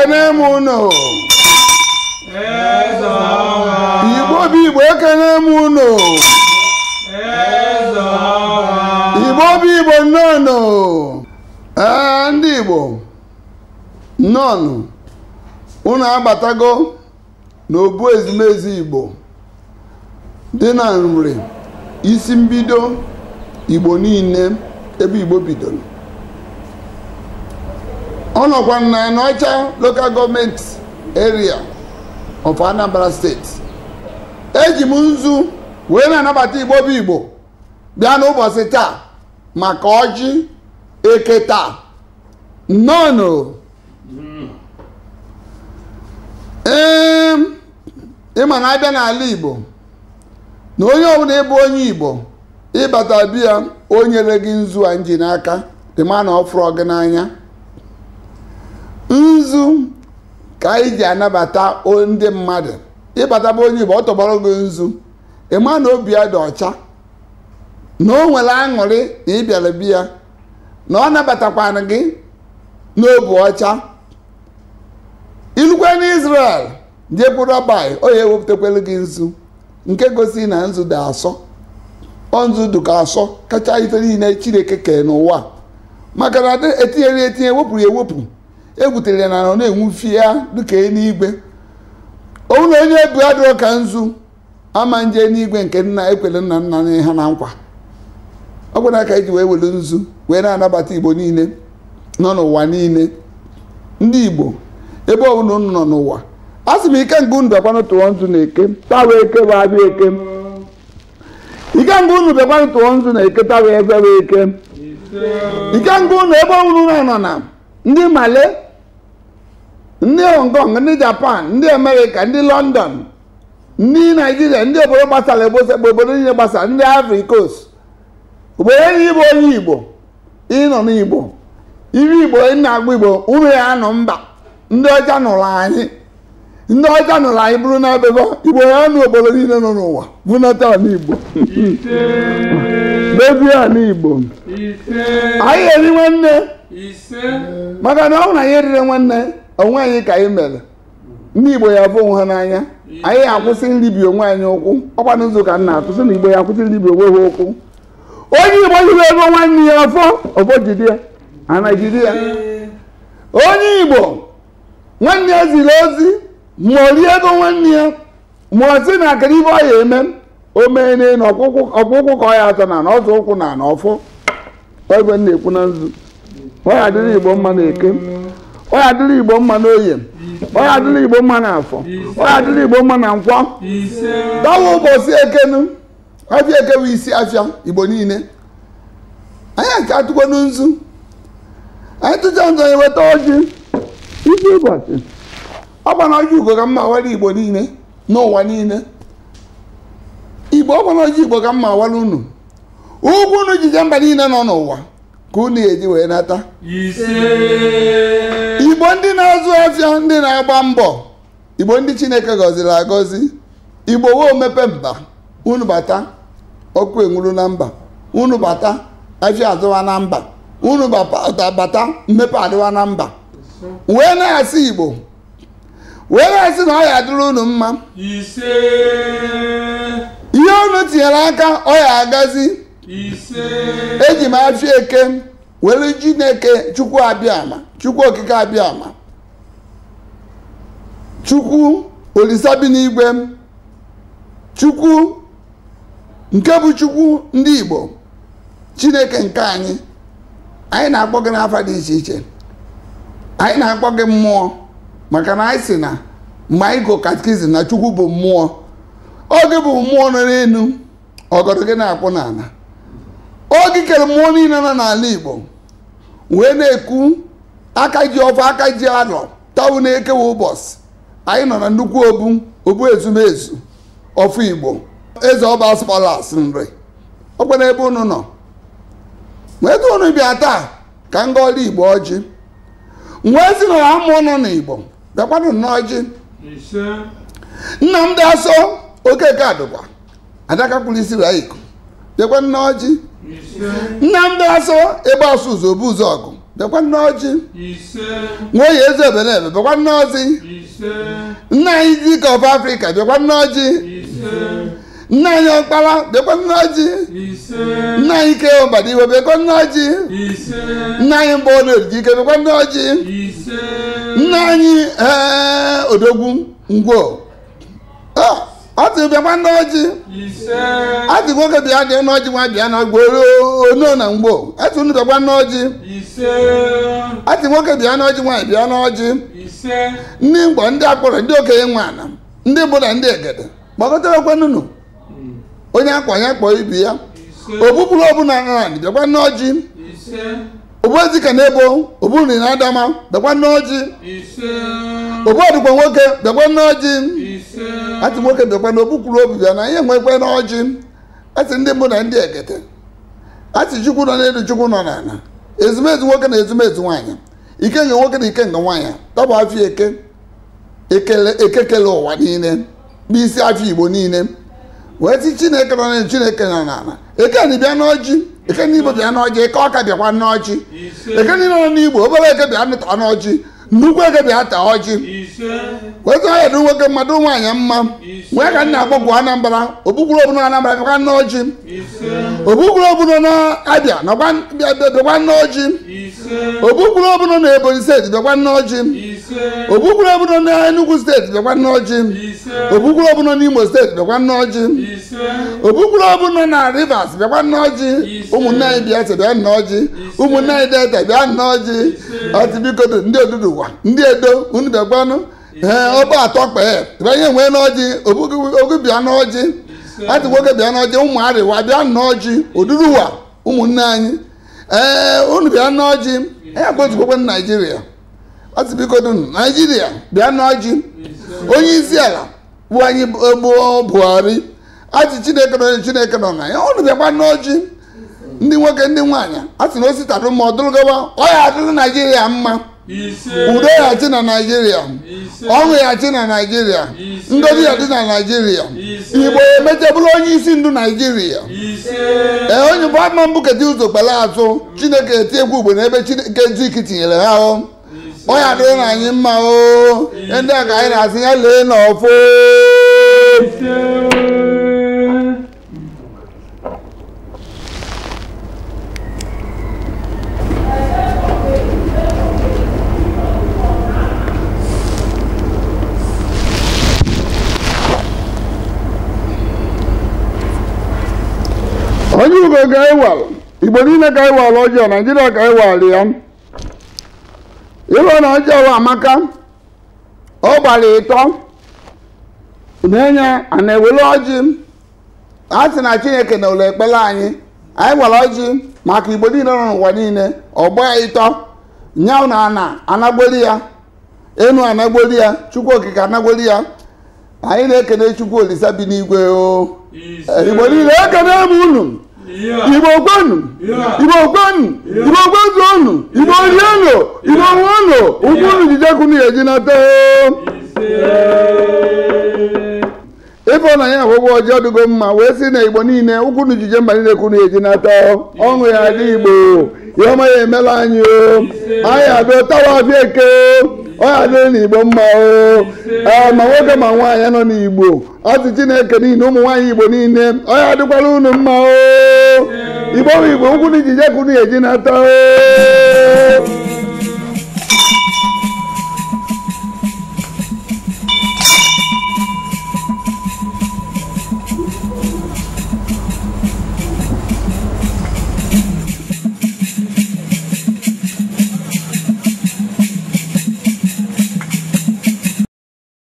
ekene m unu igbo bụ igbo ekene m unu igbo bụ igbo nnọnụ ee eh, ndị igbo nnọnụ unu agbatago n'obu ezumezu igbo dị na nri isi mbido igbo niile ebe igbo bidoro ọ nọkwa na Ịnọcha lokal gọọmenti eria of Anambra steeti eji m nzu wee na-anabata igbo bụ igbo bịa n'ụbọchị taa maka ọjị eke taa nnọọ ee ịma na abịa n'ala igbo na onye ọbụla ịbụ onye igbo ịbata biya o nyere gị nzu a nji n'aka dị ma na ọ fụrụ gị n'anya nzu ka anyị ji anabata ndị mmadụ ịbataba onye Igbo ọ gị nzu ịma na obi ya dị ọcha na o nwere aṅụrị na ịbịara biya na ọ nabatakwana gị n'obi ọcha ilukwe n'Israel jebu Rabai ọ ya ewepụtakwere gị nzu nke gosi na nzu dị asọ ọ nzu dị ka asọ kacha ife niile Chineke kee n'ụwa maka na etinyere etinye wepụrụ ya ewepụ egwutere ya na ọ na-enwufi ya dịka eluigwe onwu na onye bu adịrọ ka nzu ama nje n'igwe nke nna ekwele nna nna na ha na nkwa ọ bụ na aka iji wee welu nzu wee na-anabata igbo niile nọ n'ụwa niile ndị igbo ebe ọbụla unu nọ n'ụwa a sị m ike nke unu bịakwanụ tụọ nzu na eke tawa eke wa abịa eke ike nke unu bịakwanụ tụọ nzu na eke tawa ebe bụ eke ike nke unu ebe ọbụla unu nọ na ndị male ndị hong kong ndị japan ndị amerịka ndị london ndị naijiria ndị obodo gbasara bụ obodo niile gbasara ndị ivory coast obodo enyi bụ onye igbo ịnọ n'igbo iri igbo ị na-agba igbo ụmụ ya nọ mba ndị ọcha nụrụ anyị ndị ọcha nụrụ anyị bụrụ na ebebe igbo ya nụ obodo niile nọ n'ụwa bụnata n'igbo bebie n'igbo anyị eri nwanne maka na ọ bụ na ihe eriri nwanne onwe anyị ka anyị mere ndị igbo ya bụ ha n'anya anyị akwụsị nribi onwe anyị ụkwụ ọkwa ụzọ ka nna na-atụsị na igbo ya akwụsị nribi onwe ha ụkwụ onye igbo hiri ego nwanne ya afọ ọfọ jide na-ejide onye igbo nwanne ya ziri ozi ma ọ rie ego nwanne ya ma ọ sị na akara ibe ọ ya eme o mee n'elu ọkpụkwụ ka ọ ya atọ na na ọzọ ụkwụ na na ọfọ ọ igwe na-ekwu na nzu ọ ya adịrị igbo mma na eke onye adịla igbo mma n'oye onye adịla igbo mma na-afọ, onye adịla igbo mma na nkwọ dawa ụbọchị ekenu afịa eke bụ isi afịa igbo niile anyị aka atụkwa n'nzu anyị tụcha nzọ weta ojii, isi ụbọchị ọ gbana ọjị ugo ka mma awara igbo niile n'ụwa niile igbo ọ gbana ọjị igbo ka mma awara unu ugwu unu jije mba niile nọ n'ụwa ka unu eji wee nata igbo ndị na-azụ ọfịa ndị na-agba mbọ igbo ndị chineke gọziri agọzi igbo wee mepe mba unu bata ọkụ enwuru na mba unu bata afịa azụwa na mba unu bata mmepe adịwa na mba wee na-asị igbo wee na-asị na ọ ya adịrị unu mma ihe unu tinyere aka ọ ya agazi eji m afịa eke nwere were chukwu abịama chukwu okike abịama chukwu olisabi bi n'igwe chukwu nke bụ chukwu ndị igbo chineke nke anyị anyị na-akpọ gị n'afọ dị iche iche anyị na-akpọ gị mmụọ maka na anyị si na mgbe anyị katikizim na chukwu bụ mmụọ oge bụ mmụọ nọ n'elu ọgọdọ gị na-akpụ n'ala oge kere mmụọ niile nọ n'ala igbo wee na-ekwu aka ji ọfọ aka ji anọ tawu na-ekewa ụbọchị anyị nọ na nnukwu obu obu ezumezu ọfụ igbo eze ọba spalas nri ọkwa ebe unu nọ wee tụ unu bịa taa ka m gọọla igbo ọjị wee ezinụlọ na ha nọ n'igbo bịakwanụ n'ọjị nna m dị asọ okeke adụkwa adaka kpụrụ isi raa iko dekwa nneọjị nnamdị asọ ebe asụ ụzọ bụ ụzọ ọgụ bịakwa ọjị nneọjị nwoye eze ebelebe bekwa ọjị nna anyị dike of afrịka bekwa ọjị nna anyị ọkpara bekwa ọjị nna anyị ike bịakwa bekwa ọjị nna anyị mgbe ọ na-eriji ike bịakwa bekwa ọjị nna anyị ee odogwu ngwo ah! ọtụ bịakwa n'ọjị atụ nwoke bịa dị n'ọjị nwa bịa na gboro ono na mgbo atụ unu bịakwa n'ọjị atụ nwoke bịa n'ọjị nwaanyị bịa n'ọjị ndị mgbọ ndị akpọrọ ndị okenye nwa ala ndị bụla ndị egede gbakọtarakwa nunu hmm. onye akwa ya kpọọ ibi ya obupụrụ ọbụla nrani bịakwa n'ọjị ezika na ebo ogburi na adama bịakwa n'ọjị ogbodigbo nwoke bekwa n'ọjị ati nwoke bịakwa na obukwuru obi bịa na ihe nwekwe n'ọjị atị ndị mbụ na ndị ekete atị chukwu nọ n'elu chukwu nọ n'ala ezumezu nwoke na ezumezu nwaanyị ikenga nwoke na nga nwaanyị tọbụ afọ eke ekekele ụwa niile n'isi afọ igbo niile wee sị chineke nọ n'elu chineke nọ n'ala eke na bịa n'ọjị ekene igbo bịa n'ọjị ike ọka bịakwa n'ọjị ekene nọ n'igbo obere eke bịa nụta n'ọjị nnukwu eke bịa taa ọjị weta ya dị nwoke mmadụ nwaanyị mma nwee ka nna akpọpụ anambra obukwuru obuno anambra bịakwa n'ọjị obukwuru obuno na-abịa bịakwa n'ọjị obukwuru obuno na ebonyi steeti bịakwa n'ọjị ogbukpere ọbụla n'Enugwu steeti bịakwa n'ọjị ogbukpere ọbụla n'Imo steeti bịakwa n'ọjị ogbukpere ọbụla na Rivers bịakwa n'ọjị ụmụnne anyị Biafra bịa n'ọjị ụmụnne anyị Delta bịa n'ọjị ọtụbiko ndị oduduwa ndị edo unu bịakwanụ ee ọba atọ kpee tịba ihe nwee n'ọjị ogu bịa n'ọjị atị nwoke bịa n'ọjị ụmụ arịwa bịa n'ọjị oduduwa ụmụnne anyị ee unu bịa n'ọjị ya bụ otu naijiria ọsibikodu naijiria bịa n'ọjị onye isi ala bụ anyị e gboo buhari achị chineke nọ chineke nọ na ya ọnụ bịakwa n'ọjị ndị nwoke ndị nwaanyị asị sị na ositarụ ma ọ ya adịrị naijiria mma udo ya na naijiria ọṅụ ya na naijiria ndozi ya dị na naijiria igbo emecha bụrụ onye isi ndu naijiria ee e, onye bụ ama mbụ kedu ụzọ kpara azụ chineke eti egwu ugbo n'ebe chineke nzuiki tinyere ha ahụ ọ ya adịghị na anyị mma o ndị a ka anyị na-asị ya lee n'ọfọ onye ugo ga-ewal igbo niile ga-ewal ọjọọ naijiria ga-ewal ya iwe na ọjọọ amaka ọ gbara ịtọ na-enye a na-ewere ọjị a sị na chineke na ụlọ ekpere anyị anyị gwara ọjị maka igbo niile nọ n'ụwa niile ọgba ịtọ nyaụ na ana anagbori ya enu anagbori ya chukwu okike anagbori ya anyị na-ekene chukwu olisa bi n'igwe oo igbo niile ekene m unu igbo gwanu igbo gwanu igbo gwazu ọnụ igbo ri ọnụ igbo nwe ọnụ ụkwụ unu jidekwu na eji nata ịfọna ya akwụkwọ ọjị ọdụgo mma wee sị na igbo niile ụkwụ unu jije mba niile kwuru eji nata ọṅụ ya dị igbo ya ọma ya emela anyị anyị abịa tawa abịa eke ọya dịrị n'igbo mma a ma nwoke ma nwaanyị nọ n'igbo ọsị na chineke niile ụmụ nwaanyị igbo niile ọya dịkwara unu mma o igbo bụ igbo nkwụ na ijije eji nata o